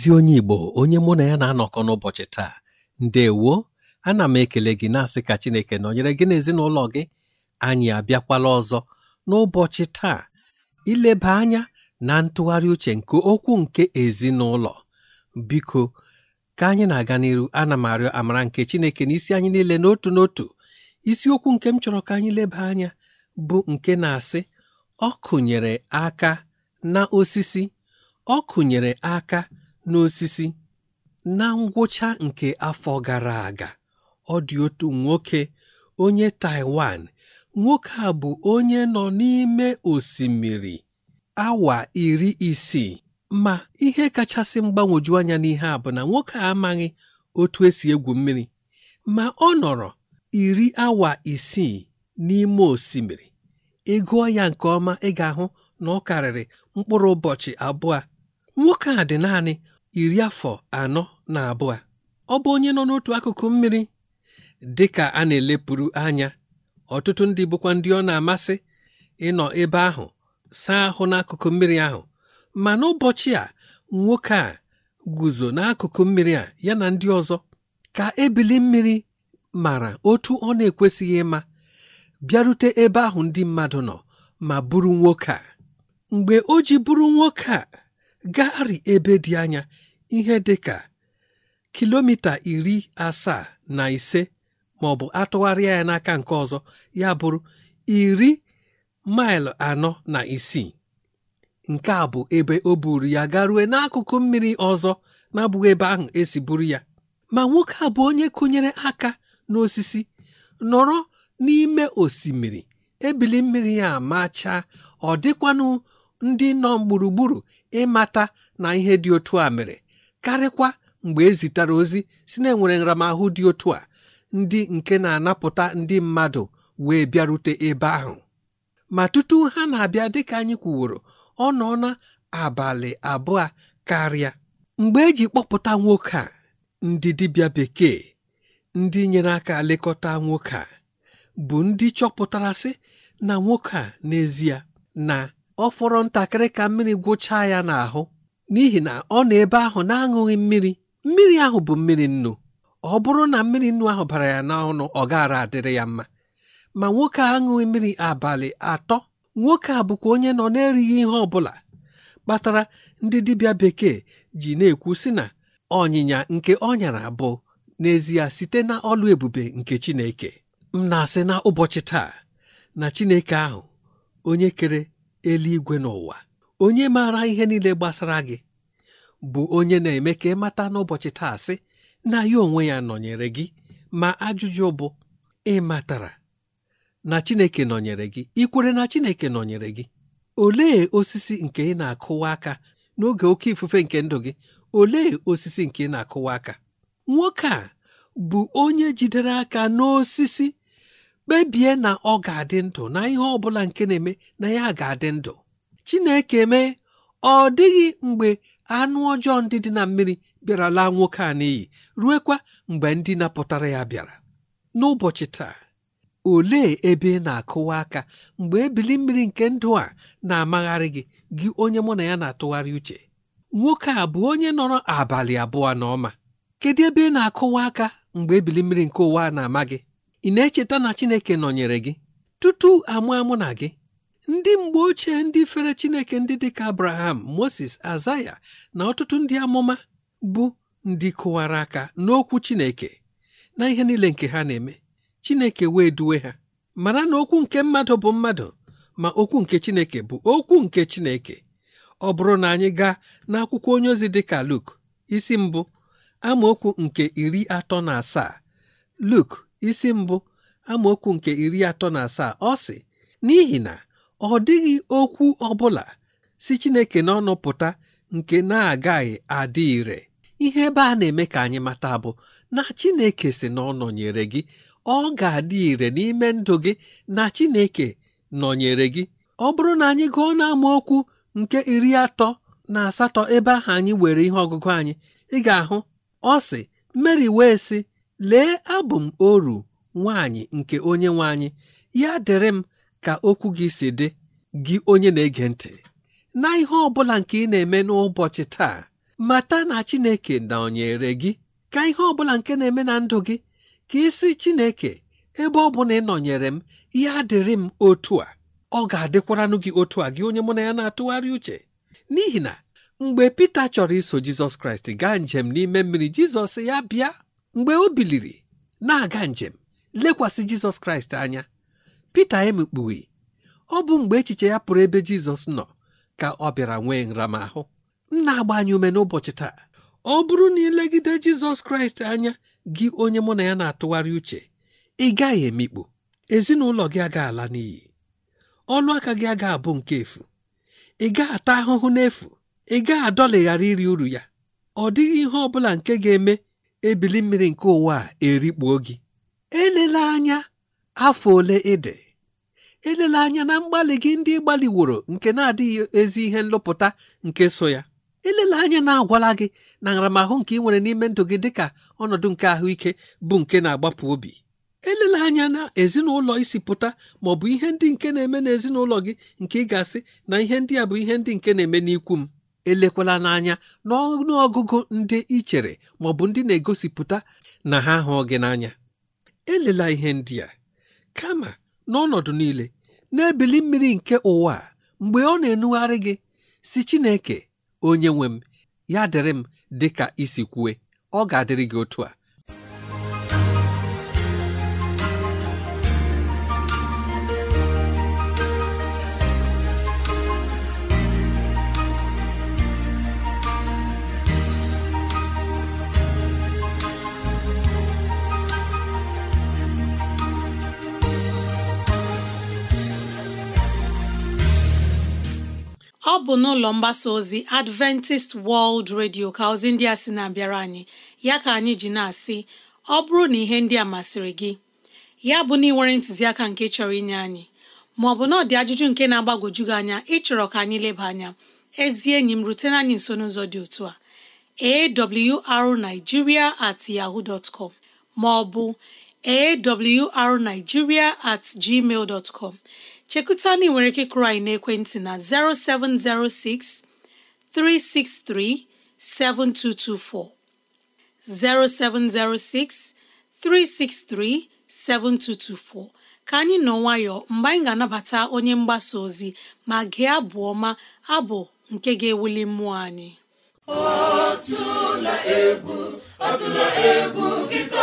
ezi onye Igbo onye mụ na ya na-anọkọ n'ụbọchị taa ndewo ana m ekele gị na-asị ka Chineke nọnyere gị n'ezinụlọ gị anyị abịakwala ọzọ n'ụbọchị taa ileba anya na ntụgharị uche nke okwu nke ezinụlọ biko ka anyị na-aga n'iru ana m arịọ amara nke Chineke na isi anyị niile n'otu n'otu isiokwu nke m chọrọ ka anyị leba anya bụ nke na-asị ọ kụnyere aka na osisi ọ kụnyere aka n'osisi na ngwụcha nke afọ gara aga ọ dị otu nwoke onye taiwan nwoke a bụ onye nọ n'ime osimiri awa iri isii ma ihe kachasị mgbagwoju anya n'ihe a bụ na nwoke a amaghị otu esi egwu mmiri ma ọ nọrọ iri awa isii n'ime osimiri ị ya nke ọma ị ga-ahụ na ọ karịrị mkpụrụ ụbọchị abụọ nwoke a dị naanị iri afọ anọ na abụọ ọ bụ onye nọ n'otu akụkụ mmiri dị ka a na-elepụrụ anya ọtụtụ ndị bụkwa ndị ọ na-amasị ịnọ ebe ahụ saa ahụ n'akụkụ mmiri ahụ ma n'ụbọchị a nwoke a guzo n'akụkụ mmiri a ya na ndị ọzọ ka ebili mmiri mara otu ọ na-ekwesịghị ịma bịarute ebe ahụ ndị mmadụ nọ ma bụrụ nwoke a mgbe o ji bụrụ nwoke a gagharị ebe dị anya ihe dị ka kilomita iri asaa na ise maọbụ atụgharịa ya n'aka nke ọzọ ya bụrụ iri maịlụ anọ na isii nke a bụ ebe o buru ya garue n'akụkụ mmiri ọzọ na ebe ahụ esi buru ya ma nwoke a bụ onye kụnyere aka n'osisi nọrọ n'ime osimiri ebili mmiri ya machaa ọ dịkwanụ ndị nọ gburugburu ịmata na ihe dị otu a mere karịkwa mgbe e zitere ozi si na enwere nramahụ dị otu a ndị nke na-anapụta ndị mmadụ wee bịarute ebe ahụ ma tutu ha na-abịa dịka anyị kwuworo ọ nọ na abalị abụọ karịa mgbe eji kpọpụta nwoke a ndị dibịa bekee ndị nyere aka lekọta nwoke a bụ ndị chọpụtara sị na nwoke a n'ezie na ọ fọrọ ntakịrị ka mmiri gwụchaa ya n'ahụ n'ihi na ọ nọ ebe ahụ na-aṅụghị mmiri mmiri ahụ bụ mmiri nnu ọ bụrụ na mmiri nnu ahụ bara ya n'ọnụ ọ gaara adịrị ya mma ma nwoke a aṅụghị mmiri abalị atọ nwoke a bụkwa onye nọ na-erighị ihe ọ bụla kpatara ndị dibịa bekee ji na-ekwu sị na ọnyịnya nke ọ nyara bụ n'ezie site na ọlụ ebube nke Chineke m na-asị na ụbọchị taa na Chineke ahụ onye kere eluigwe n'ụwa onye maara ihe niile gbasara gị bụ onye na-eme ka ị mata n'ụbọchị taa sị na ya onwe ya nọnyere gị ma ajụjụ bụ ị matara na Chineke nọnyere gị ikwere na Chineke nọnyere gị olee osisi nke ị na-akụwa aka n'oge oke ifufe nke ndụ gị olee osisi nke ị na-akụwa aka nwoke a bụ onye jidere aka n'osisi kpebie na ọ ga-adị ndụ na ihe ọ bụla nke na-eme na ya ga-adị ndụ chineke mee ọ dịghị mgbe anụ ọjọọ ndị dị na mmiri bịara laa nwoke a n'iyi ruekwa mgbe ndị napụtara ya bịara n'ụbọchị taa olee ebe ị na-akụwa aka mgbe ebili mmiri nke ndụ a na-amagharị gị gị onye mụ na ya na-atụgharị uche nwoke a bụ onye nọrọ abalị abụọ na ọma. kedu ebe ị na-akụwa aka mgbe ebili mmiri nke ụwa na-ama gị ị na-echeta na chineke nọnyere gị tutu amụ amụ na gị ndị mgbe ochie ndị fere chineke ndị dị ka abraham moses azaya na ọtụtụ ndị amụma bụ ndị kụwara aka n'okwu chineke na ihe niile nke ha na-eme chineke wee duwe ha mara na okwu nke mmadụ bụ mmadụ ma okwu nke chineke bụ okwu nke chineke ọ bụrụ na anyị gaa n'akwụkwọ onye ozi dịka Luk isi mbụ amaokwu nke iri atọ na asaa Luk isi mbụ amaokwu nke iri atọ na asaa ọ sị n'ihi na ọ dịghị okwu ọ bụla si Chineke n'ọnụ pụta nke na-agaghị adị ire ihe ebe a na-eme ka anyị mata bụ na Chineke si na ọ gị ọ ga-adị ire n'ime ndụ gị na Chineke nọnyere gị ọ bụrụ na anyị gụọ n'amaokwu nke iri atọ na asatọ ebe ahụ anyị were ihe ọgụgụ anyị ị ga-ahụ ọ sị mary wee sị Lee abụ m oru Nwanyị nke onye nwanyị ya dịrị m ka okwu gị si dị, gị onye na-ege ntị. Na ihe ọ bụla nke ị na-eme n'ụbọchị taa, mata na Chineke nọnyere gị. Ka ihe ọ bụla nke na-eme na ndụ gị, ka isi Chineke ebe ọ bụ na ị nọnyere m, ya dịrị m otu a. Ọ ga-adịkwaranụ gị otu a gị onye mụ na ya na-atụgharị uche. N'ihi na mgbe Pita chọrọ iso Jizọs Kraịst gaa njem n'ime mmiri, Jizọs ya bịa mgbe o biliri na-aga njem lekwasị jizọs kraịst anya pita emikpughi ọ bụ mgbe echiche ya pụrụ ebe jizọs nọ ka ọ bịara nwee nramahụ m na-agba anyị ume n'ụbọchị taa ọ bụrụ na ilegide jizọs kraịst anya gị onye mụ na ya na-atụgharị uche ị gaghị emikpu ezinụlọ gị aga ala n'iyi ọnụ aka gị aga abụ nke efu ị gaa ata ahụhụ n'efu ị gaghị adọlighara iri uru ya ọ dịghị ihe ọ bụla nke ga-eme ebili mmiri nke ụwa a erikpuo gị Elele anya afọ ole ịdị elele anya na mgbalị gị ndị gbaliworo nke na-adịghị ezi ihe nlụpụta nke so ya elele anya na-agwala gị na nramahụ nke ị nwere n'ime ndụ gị dịka ọnọdụ nke ahụike bụ nke na-agbapụ obi Elele anya na ezinụlọ isi pụta ma ọ bụ ihe ndị nke na-eme n'ezinụlọ gị nke ị ga-asị na ihe ndị a bụ ihe ndị nke na-eme n'ikwu m elekwala n'anya n'ọnụ ọgụgụ ndị i chere bụ ndị na-egosipụta na ha hụ gị n'anya elela ihe ndị a kama n'ọnọdụ niile n'ebili mmiri nke ụwa mgbe ọ na-enugharị gị si Chineke onye nwe m ya dịrị m dị ka isi kwue ọ ga-adịrị gị otu a ọ bụ n'ụlọ mgbasa ozi Adventist World Radio ka ozi ndị a sị na-abịara anyị ya ka anyị ji na-asị ọ bụrụ na ihe ndị a masịrị gị ya bụ na ị nwere ntụziaka nke chọrọ inye anyị ma ọ bụ na ajụjụ nke na-agbagwoju gị anya ịchọrọ ka anyị leba anya ezi enyi m rutena anyị nso n'ụzọ dị otu a awrnigeria at yaho dtcom maọbụ ma ọ bụ at gmail dot chekụta na ị nwere ike kụrụ anyị n'ekwentị na 0706 363 7224 0706 363 7224 ka anyị nọ nwayọọ mgbe anyị ga-anabata onye mgbasa ozi ma gị abụ ọma abụ nke ga-ewuli mmụọ anyị ọ egwu ọ egwu gị ka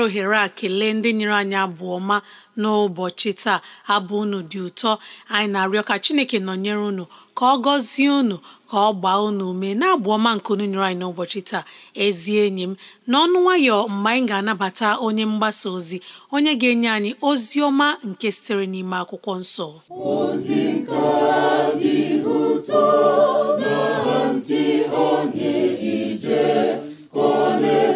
were ohere a kelee ndị nyere anyị abụ ọma n'ụbọchị taa abụ unu dị ụtọ anyị na-arịọ ka Chineke nọnyere unu ka ọ gọzie unu ka ọ gbaa unu ume na-abụ ọma nke unu nyere anyị n'ụbọchị taa ezi enyi m n'ọnụ nwayọ mgbe anyị ga-anabata onye mgbasa ozi onye ga-enye anyị ozi ọma nke sitere n'ime akwụkwọ nsọ ozi nke dị ụtọ na ntị onye ije ka ọ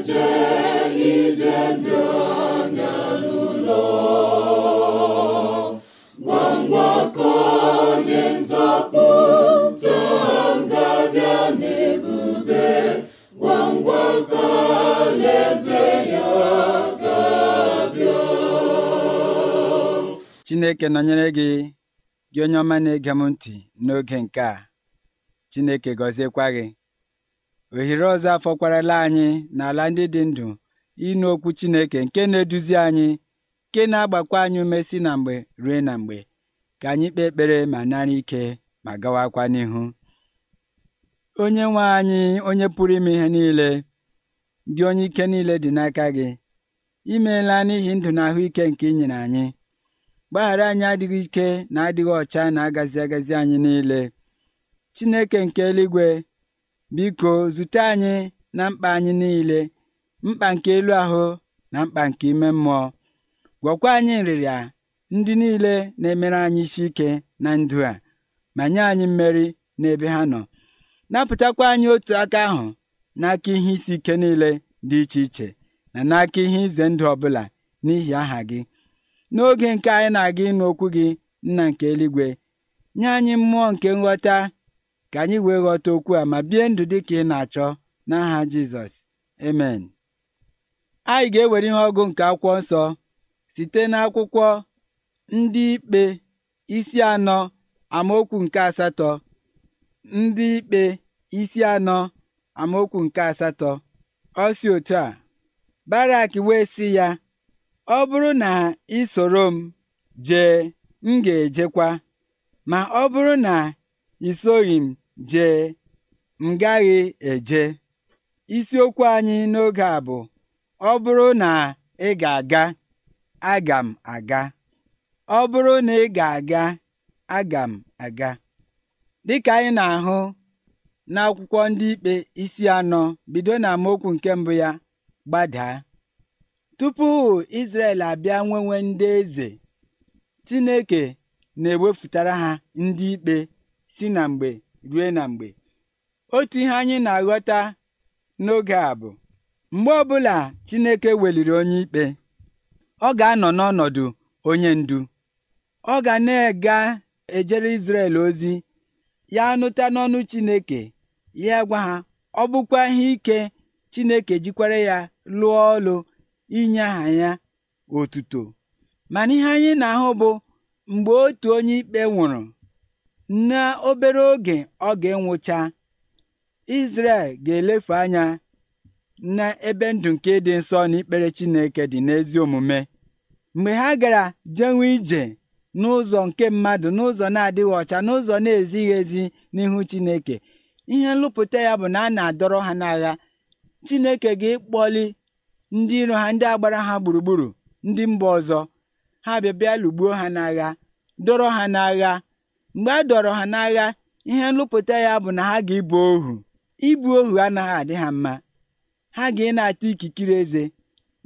chineke nọnyere gị gị onye ọma na-ege m ntị n'oge nke a chineke gọziekwa gị ohere ọzọ afọ kwarala anyị n'ala ndị dị ndụ ịnụ okwu chineke nke na-eduzi anyị nke na-agbakwa anyị ume si na mgbe rue na mgbe ka anyị kpee ekpere ma nara ike ma gawakwa n'ihu onye nwe anyị onye pụrụ ime ihe niile Gị onye ike niile dị n'aka gị imeela n'ihi ndụ na ahụike nke inyere anyị gbaghara anyị adịghị ike na adịghị ọcha na agazi agazi anyị niile Chineke nke eluigwe biko zute anyị na mkpa anyị niile mkpa nke elu ahụ na mkpa nke ime mmụọ gwakwa anyị nrịrịa ndị niile na-emere anyị isi ike na ndụ a ma nye anyị mmeri n'ebe ha nọ napụtakwa anyị otu aka ahụ n'aka ihe isi ike niile dị iche iche na n'aka ihe ize ndụ ọbụla n'ihi aha gị n'oge nke anyị na-aga ịnụ okwu gị nna nke eluigwe nye anyị mmụọ nke nghọta ka anyị wee ghọta okwu a ma bie ndụ dị ka ị na-achọ n'aha Jizọs emen anyị ga-ewere ihe ọgụ nke akwụkwọ nsọ site n'akwụkwọ ndị ikpe isi anọ amaokwu nke asatọ ndị ikpe isi anọ amaokwu nke asatọ ọ si otu a Barak wee si ya ọ bụrụ na ị soro m jee m ga-ejekwa ma ọ bụrụ na i m jee m gaghị eje isiokwu anyị n'oge a bụ ọ bụrụ na ị ga-aga aga m aga ọ bụrụ na ị ga-aga aga m aga dịka anyị na-ahụ n'akwụkwọ ndị ikpe isi anọ bido n'amaokwu nke mbụ ya gbadaa tupu Izrel abịa nwenwe ndị eze Chineke na-ewepụtara ha ndị ikpe si na mgbe rue na mgbe otu ihe anyị na-aghọta n'oge a bụ mgbe ọbụla Chineke weliri onye ikpe ọ ga-anọ n'ọnọdụ onye ndu ọ ga na-ega ejere Izrel ozi ya nụta n'ọnụ Chineke ya gwa ha ọ bụkwa ihe ike Chineke jikwara ya lụọ ọlụ inye aha ya otuto mana ihe anyị na-ahụ bụ mgbe otu onye ikpe nwụrụ na obere oge ọ ga-enwụcha Izrel ga-elefu anya n'ebe ndụ nke dị nsọ na ikpere Chineke dị n'ezi omume mgbe ha gara jenwe ije n'ụzọ nke mmadụ n'ụzọ na-adịghị ọcha n'ụzọ na-ezighị ezi n'ihu Chineke ihe nlụpụta ya bụ na a na-adọrọ ha n'agha Chineke ga-ekpọli ndị iro ha ndị agbara ha gburugburu ndị mba ọzọ ha bịa bịa lụgbuo ha n'agha dọrọ ha n'agha mgbe a dọrọ ha n'agha ihe nlụpụta ya bụ na ha ga-ebu ohu ibu ohu anaghị adị ha mma ha ga na-ata ikikere eze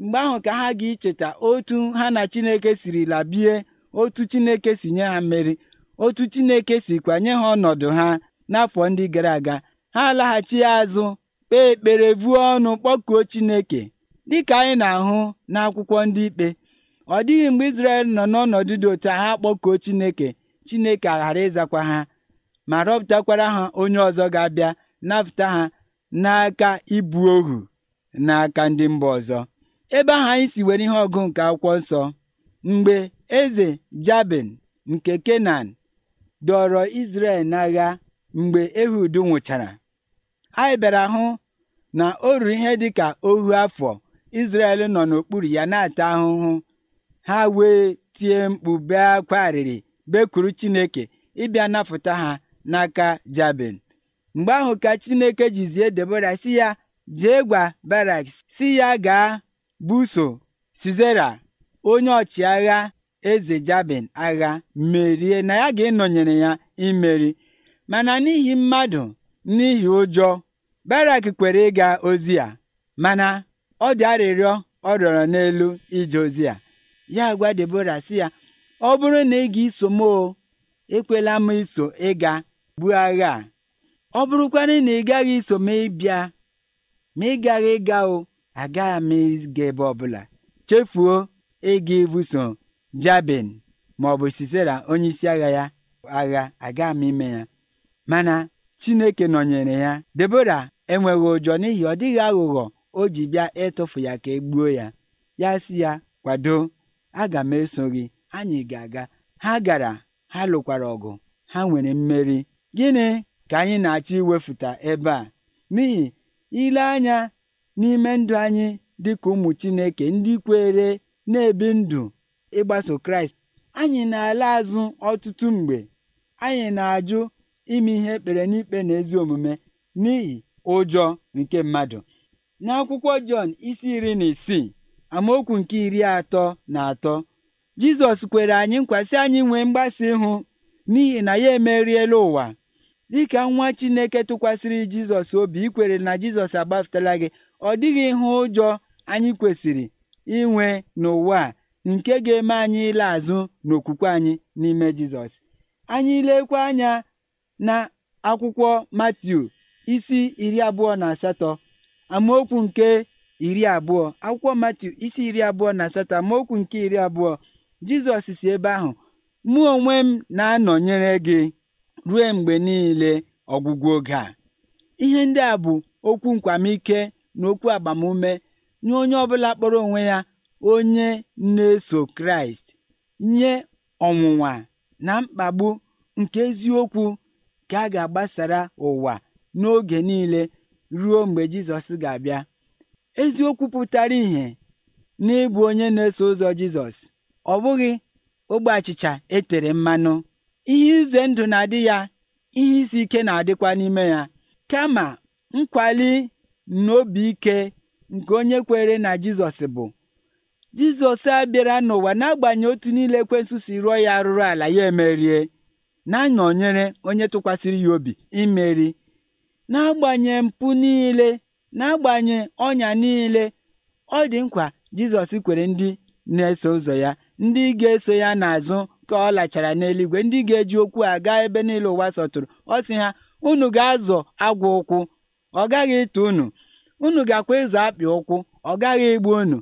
mgbe ahụ ka ha ga icheta otu ha na Chineke siri labie otu Chineke si nye ha mmeri otu Chineke si kwanye ha ọnọdụ ha n'afọ ndị gara aga ha alaghachi azụ kpee ekpere vuo ọnụ kpọkuo Chineke dịka anyị na-ahụ n'akwụkwọ ndị ikpe ọ dịghị mgbe Izrel nọ n'ọnọdụ dị otu ha kpọkuo Chineke Chineke aghara ịzakwa ha ma rọpụtakwara ha onye ọzọ ga-abịa napụta ha n'aka ibu ohu n'aka ndị mba ọzọ ebe ahụ anyị si were ihe ọgụ nke akwụkwọ nsọ mgbe eze Jabin nke Kenan dọrọ Izrel n'agha mgbe Ehud nwụchara anyị bịara hụ na o ruru ihe dị ka ohu afọ Izrel nọ n'okpuru ya na-ata ahụhụ ha wee tie mkpu bee akwa arịrị bekuru Chineke ịbịa napụta ha n'aka Jabin mgbe ahụ ka Chineke jizie Debora si ya jee gwa Barak si ya gaa buso sizera onye ọchịagha eze Jabin agha merie na ya ga ịnọnyere ya imeri mana n'ihi mmadụ n'ihi ụjọ Barak kwere ịga ozi a mana ọ dị arịrịọ ọ rịọrọ n'elu ije ozi ya ya gwa Debora sị ya ọ bụrụ na ị ga-eso m o ekwela m iso ịga buo agha a ọ bụrụkwanụ na ị gaghị iso m ịbịa ma ị gaghị ịga o agaghị m ịga ebe ọbụla chefuo ịga ibuso Jabin ma ọ bụ isi agha ya agha agaghị m ime ya mana Chineke nọnyere ya Debora enweghị ụjọ n'ihi ọ dịghị aghụghọ o ji bịa ịtụfu ya ka e gbuo ya ya si ya kwado aga m eso gị anyị ga-aga ha gara ha lụkwara ọgụ ha nwere mmeri gịnị ka anyị na-achọ iwefuta ebe a n'ihi ile anya n'ime ndụ anyị dịka ụmụ Chineke ndị kwere na-ebi ndụ ịgbaso Kraịst anyị na-ala azụ ọtụtụ mgbe anyị na-ajụ ime ihe ekpere n'ikpe na ezi omume n'ihi ụjọ nke mmadụ n'akwụkwọ Jọn isi iri na isii amaokwu nke iri atọ na atọ Jizọs kwere anyị nkwasị anyị nwee mgbasa ịhụ n'ihi na ya emeriela ụwa dịka nwa Chineke tụkwasịrị Jizọs obi ikwere na Jizọs agbafutela gị ọ dịghị ihe ụjọ anyị kwesịrị inwe n'ụwa nke ga-eme anyị ile azụ n'okwukwe anyị n'ime Jizọs anyị ilekwa anya na akwụkwọ Matiu isi iri abụọ na asatọ amaokwu nke iri abụọ akwụkwọ Matiu isi iri abụọ na asatọ amaokwu nke iri abụọ Jizọs si ebe ahụ mụ onwe m na-anọnyere gị ruo mgbe niile ọgwụgwụ oge a ihe ndị a bụ okwu nkwamike na okwu agbamume nye onye ọbụla kpọrọ onwe ya onye na-eso Kraịst nye ọnwụnwa na mkpagbu nke eziokwu nke a ga-agbasara ụwa n'oge niile ruo mgbe Jizọs ga-abịa. Eziokwu pụtara ìhè n'ịbụ onye na-eso ụzọ Jizọs ọ bụghị ogbe achịcha etere mmanụ ihe ize ndụ na-adị ya ihe isi ike na-adịkwa n'ime ya kama nkwali n'obi ike nke onye kwere na Jizọs bụ Jizọs abịara n'ụwa n'agbanyeghị otu niile ekwensu si rụọ ya arụrụ ala ya emerie na-anọnyere onye tụkwasịrị ya obi imeri na-agbanye mpụ niile agbanye ọnya niile ọ dị nkwa Jizọs kwere ndị na-eso ụzọ ya ndị ga-eso ya n'azụ ka ọ lachara n'eluigwe ndị ga-eji okwu a gaa ebe niile ụwa sọtụrụ ọ sị ha unu ga-azọ agwa ụkwụ ọ gaghị ịtụ unu unu ga-akwa ịzọ akpị ụkwụ ọ gaghị igbu unu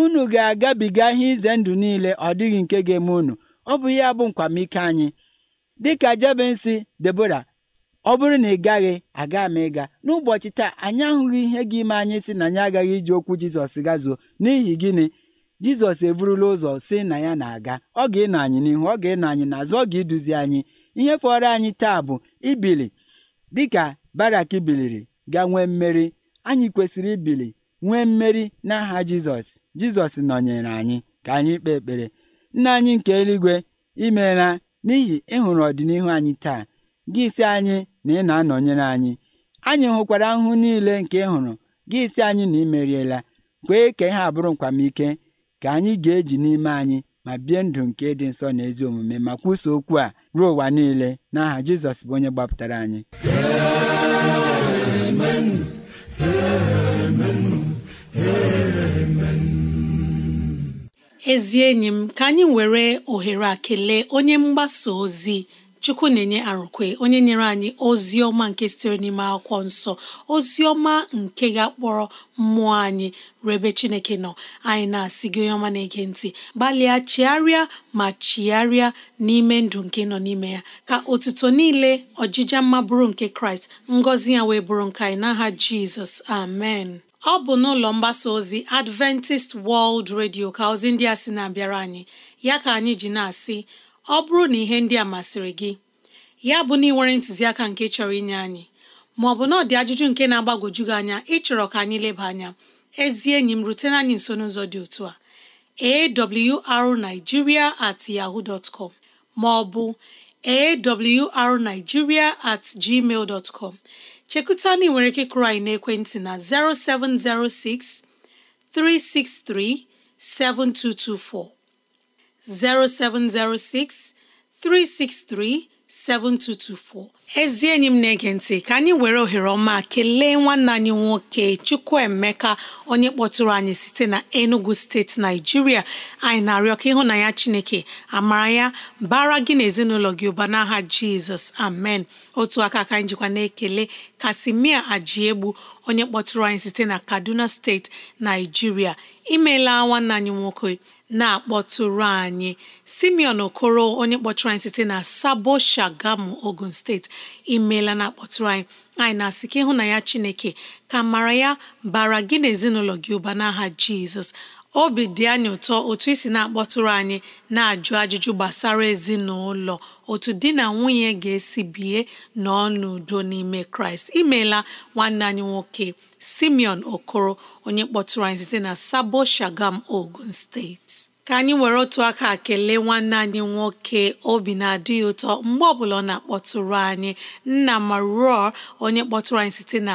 unu ga-agabiga ihe ize ndụ niile ọ dịghị nke ga-eme unu ọ bụ ihe bụ nkwamike anyị dịka jebensi Debora ọ bụrụ na ị gaghị aga m ịga n'ụbọchị taa anyị ahụghị ihe gị ime anyị sị na anyị agaghị iji okwu Jizọs gazuo n'ihi gịnị Jizọs eburula ụzọ si na ya na-aga ọ ga-ịnọ anyị n'ihu ọ ga-ịnọ anyị n'azụ ọ ga-eduzi anyị ihe fọrọ anyị taa bụ ibili dịka Barak biliri ga nwee mmeri anyị kwesịrị ibili nwee mmeri n'aha Jizọs Jizọs nọnyere anyị ka anyị kpee ekpere nna anyị nke eluigwe imeela n'ihi ịhụrụ e ọdịnihu anyị taa gị si anyị na ị na-anọnyere anyị anyị hụkwara ahụhụ niile nke ịhụrụ hụrụ gị si anyị na imeriela kwee ka ihe abụrụ nkwamike ka anyị ga-eji n'ime anyị ma bie ndụ nke dị nsọ na ezi omume ma kwuso okwu a ruo ụwa niile n'aha Jizọs bụ onye gbapụtara anyị ezi enyi m ka anyị were ohere a kelee onye mgbasa ozi chukwu na-enye arụkwe onye nyere anyị ozi ọma nke sitere n'ime akwụkwọ nsọ ozi ọma nke ga-akpọrọ mmụọ anyị rebe chineke nọ anyị na-asị gị onye ọma na-ege ntị gbalịa chiarịa ma chiarịa n'ime ndụ nke nọ n'ime ya ka otuto niile ọjịja mma bụrụ nke kraịst ngọzi ya wee bụrụ nke anyị n'aha jizọs amen ọ bụ n'ụlọ mgbasa ozi Adventist World Radio ka ozi ndị a sị na-abịara anyị ya ka anyị ji na-asị ọ bụrụ na ihe ndị a masịrị gị ya bụ na ị nwere ntụziaka nke chọrọ inye anyị ma ọ bụ na ọ dị ajụjụ nke na agbagoju gị anya ịchọrọ ka anyị leba anya ezi enyi m rutena anyị nso n'ụzọ dị otu a awrnigeria at yaho dot com ma ọ bụ at gmail dot chekuta na ị nwere ike kụrụ anyị n'ekwentị na 0706 363 7224 0706 363 7224 ezi enyi m na-ege ntị ka anyị were ohere ọma kelee nwanne anyị nwoke Chukwuemeka onye kpọtụrụ anyị site na Enugu steeti Naijiria anyị na-arịọ ka ya Chineke amara ya bara gị na ezinụlọ gị ụba n'aha Jizọs amen otu aka ka anyị na-ekele Kasimia Ajiegbu onye kpọtụrụ anyị site na Kaduna steeti Naijiria imeela nwanne anyị nwoke na-akpọtụrụ anyị simeon okoro onye kpọtụrụ anyị site na sabo shagamu ogun steeti imeela na-akpọtụrụ anyị anyị na-asị ka ịhụ na ya chineke ka mara ya bara gị na ezinụlọ gị ụba n'aha jizọs obi dị anyị ụtọ otu isi na-akpọtụrụ anyị na-ajụ ajụjụ gbasara ezinụlọ otu di na nwunye ga-esi bie n'ọnụ n'udo n'ime kraịst imeela nwanne anyị nwoke simeon okoro onye kpọtụrụ anyị site na sabo shagam ogun steeti ka anyị were otu aka kelee nwanne anyị nwoke obi na-adịghị ụtọ mgbe ọbụla ọ na-akpọtụrụ anyị nna ma ruo onye kpọtụrụ anyị site na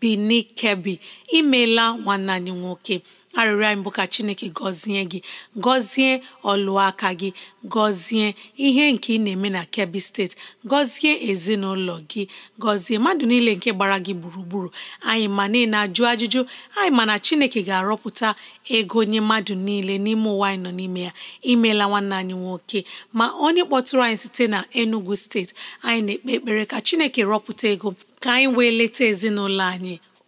bini kebi imela nwanne anyị nwoke arịrịọ anyị bụ ka chineke gọzie gị gọzie ọlụaka gị gọzie ihe nke ị na-eme na kebi steeti gọzie ezinụlọ gị gọzie mmadụ niile nke gbara gị gburugburu anyị ma niile ajụ ajụjụ anyị ma na chineke ga-arọpụta ego onye mmadụ niile n'ime ụwa anyị nọ n'ime ya imeela nwanne anyị nwoke ma onye kpọtụrụ anyị site na enugu steeti anyị na-ekpe ekpere ka chineke rọpụta ego ka anyị wee leta ezinụlọ anyị imeela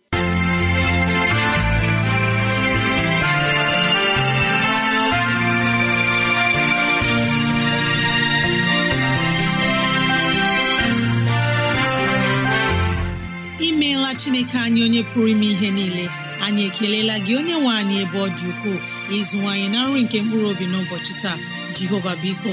chineke anyị onye pụrụ ime ihe niile anyị ekelela gị onye nwe anyị ebe ọ dị ukwuu ịzụwanyị na nri nke mkpụrụ obi n'ụbọchị taa jehova biko